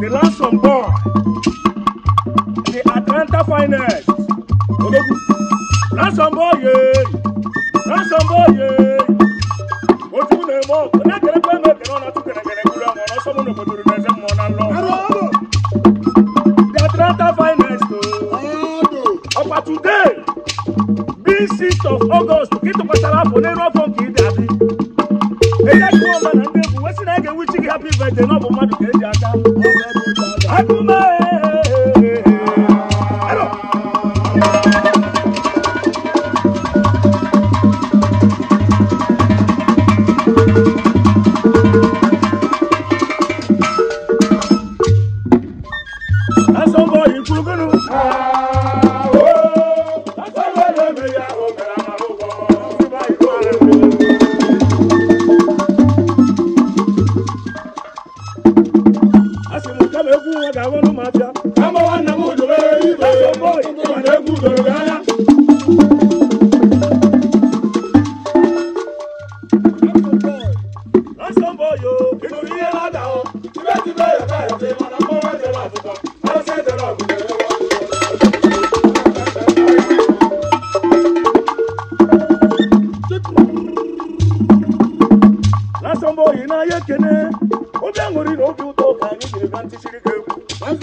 the ransom boy, the Atlanta finest. Ransom boy, yeah. Ransom boy, yeah. today being sixth of august gị tụkwasara afọ n'elu afọ nke ịdị adị eye gị nwa ọma na ndị egwu wesị na ege wichi gị hapụ ibete n'ọbụ obi ekene somebody I'm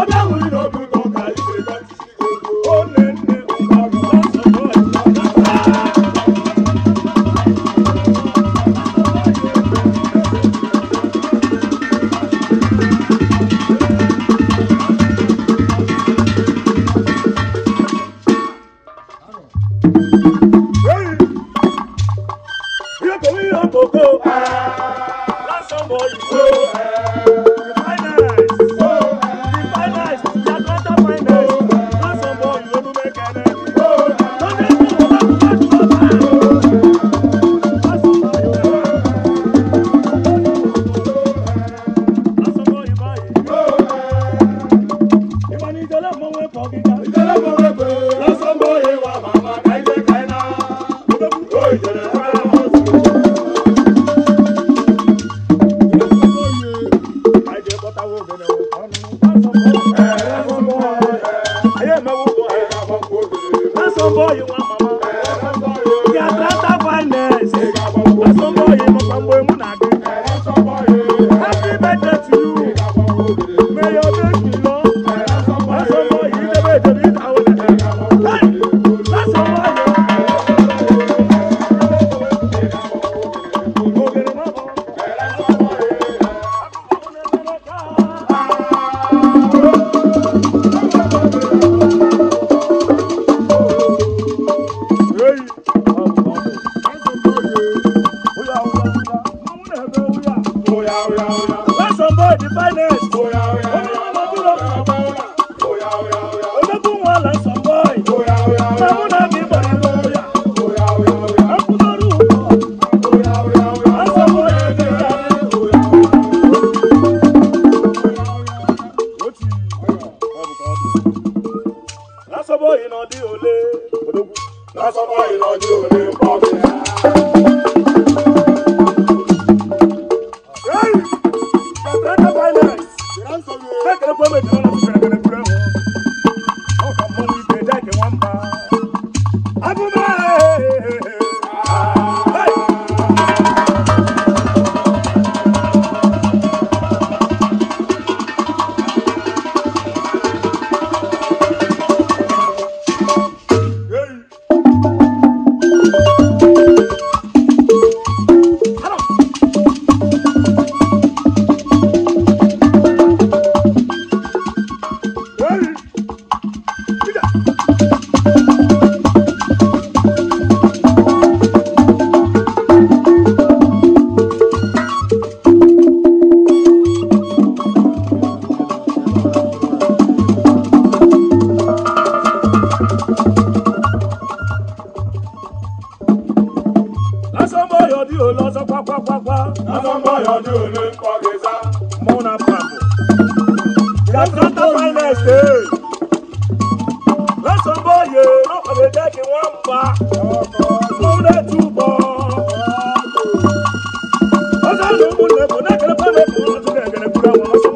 somebody ìgbó lásán mọ ìgbó. boy, you want finest. Onímọ̀ dúró. Ológun wọn là ń sọ bọ́ọ̀ì. Sàmúnà mi bọ̀ ní lóyà. Akúlọ́rù pọ̀. Àsọ̀wọ́ ẹ̀dẹ̀ ká. Lásọ̀bọ̀ ìnàdí òlé. Lásọ̀bọ̀ ìnàdí òlé pọ̀ sí. let's go, Yatrata finest day. Lẹ́sàn bóyè lọ́kọ̀wé jẹ́ kí wọ́n pa. Lóde túbọ̀. Ó sáré mú lẹ́kọ̀ọ́ náà kẹ́lẹ́ pẹ́lẹ́ kọ́ ọ́n tún kẹ́kẹ́rẹ́ kúrẹ́ wọn.